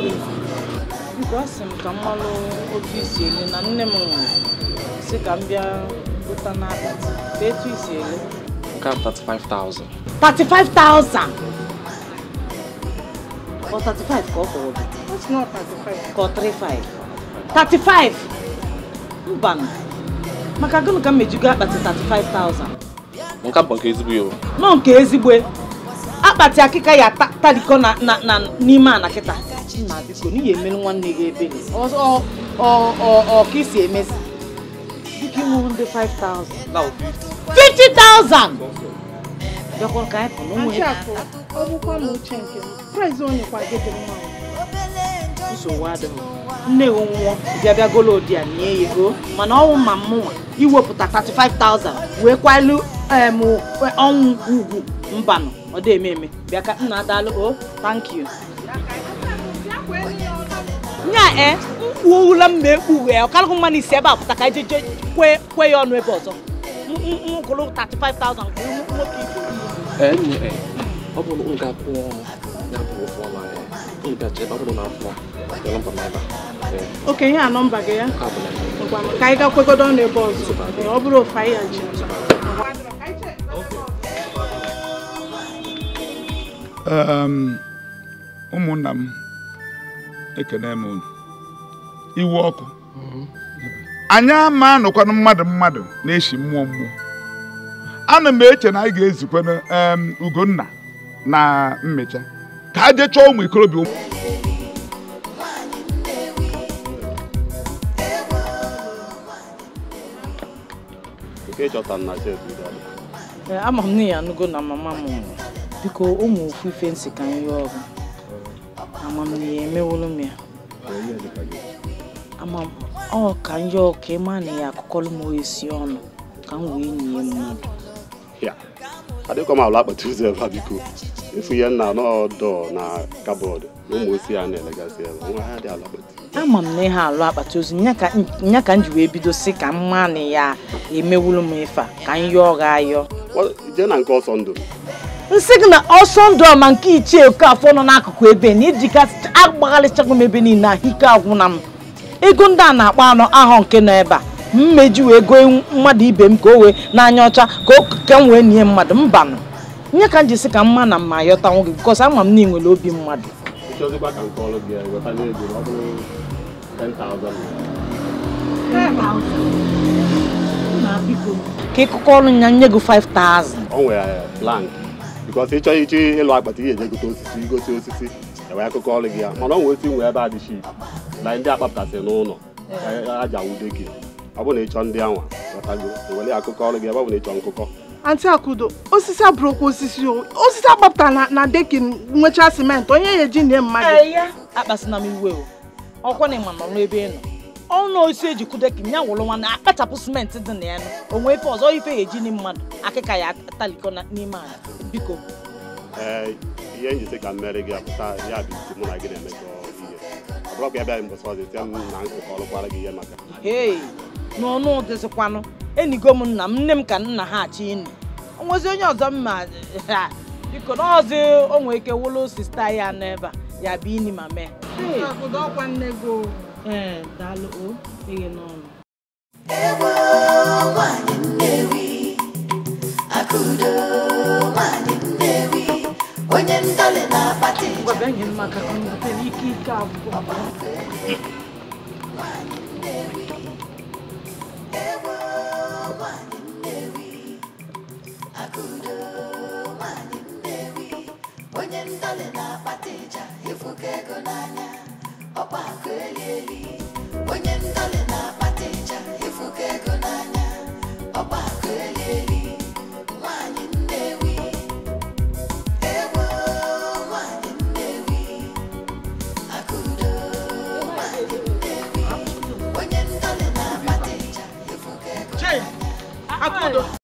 palliative. Mgbe a sị m ka m malụ otu isi ele na nne m nwụrụ si ka m bịa bụta n'akpati ka etu isi ele. Nke a 35,000. 35,000? Ọ 35 ka ọ kwụrụ gị? It's not 35. Ka ọ Maka gịnị ka m mejugo akpati 35,000? Nke bụ nke ezigbo ya Nọ nke ezigbo akpati akịka ya tarikọ n'ime ana kịta echi na biko n'ihi emere nwanne gị ebere ọ ka isi emezi dịka inwuru ndị 5000 50000 bịakwa ka anyị pụrụ onwe nsogbu adịghị nne gị nwụọ bịa bịa golo di ya nye ya ego mana ọnwụ ma mụnwa iwepụta 35000 wee kwalụ ọnwụ ugwu mbanụ ọ dị eme eme bịa ka nna adalụ o oh, thank you nya e eh? mkpuola m ma ekpughe ya ọkarịghị mmanụ isi ebe a pụta ka eje kwe ya ọnụ ebe ọzọ mkpụrụ 35,000 okenye a nọmba gị ya ka anyị gakwegodo ọnụ ebe ọzọ ọ bụrụ ofe anyị ya ji ụmụnna m ekene m unu iwe ọkụ mhm. anyị ama anụkwanụ mmadụ mmadụ na-eshi mmụọ mmụọ ana m eche na anyị ga-ezukwanụ Ugonna na mmecha ka a jechaa ụmụ ikorobịa eh, ama m na ya anụgo na mama m biko ụmụ ofufe nsị ka anyị ọgụ. amamihe emewolu m ya ọ ka njọ ka ị na ya akụkọlụ m esi ọnụ ka m wee nye mmadụ m ala ụzọ ebe a biko efu ya nna na kabọọdụ na ụmụ ya na-elegasị ebe ha dị ala ama m na alụ akpata ozu nya ka m ji wee bido si ka ya emewulu m ife ka m ọ ga ayọ jee na nke ọsọ ndụ nsị gị na ọsọ ndụ ọma nke ichie Okafọ nọ n'akụkụ ebe na ijikasị agbagharịchago m ebe niile ahụ ike agwụna m ego ndị a na-akpa anọ ahụ nke nọ ebe a mmeji wee goo mmadụ ibe m ka o wee n'anya ọcha ka m wee nie mmadụ mbanụ nye ka m jisi ka mma na mma ayọtanwu gị bikọs ama m na nwere obi mmadụ ka ịkụkọ ọrụ ya nye gị 5000 because ịchọ iji ịlụ akpata ihe ejegote osisi igosi osisi enwe akụkọ ọrụ gị ya mana ọ nwee esi nwee ebe adịchi na ndị akpapụtasịrị n'ụlọ aja wude gị ọ bụ na ịchọ ndị anwa were akụkọ ọrụ gị ebe ọ bụ na ịchọ nkụkọ anti akudo osisi abụrụkwa osisi o osisi agbapụtara na dekin nwecha simenti onye ya eji nne mmadụ akpasịna m iwe o ọkwa na ịma nọ n'ebe ị nọ ọnụ osisi eji kụ dekin ya wụrụ nwa na akpachapụ simenti dị na ya nụ onwe ife ọzọ ife ya eji nne mmadụ akịka ya atalikọ n'ime ala biko ee ihe njisi ka mmeri gị apụta ya bụ isi mụ na gị na eme ihe ọ bụrụ ka ya bịaghị mbọsị ọzọ tie m na nkụkọ ọlụkwara gị ihe maka ee n'ọnụ ụdịzikwanụ enigo m nna m nne m ka nna ha achị ịnụ onwezi onye ọzọ mma biko na ọzọ onwe ike wụlụ sista ya n'ebe a ya bụ ini ma mee ee daalụ o eghe n'ọnụ onye ndọlị na-akpata ike abụọ tudo.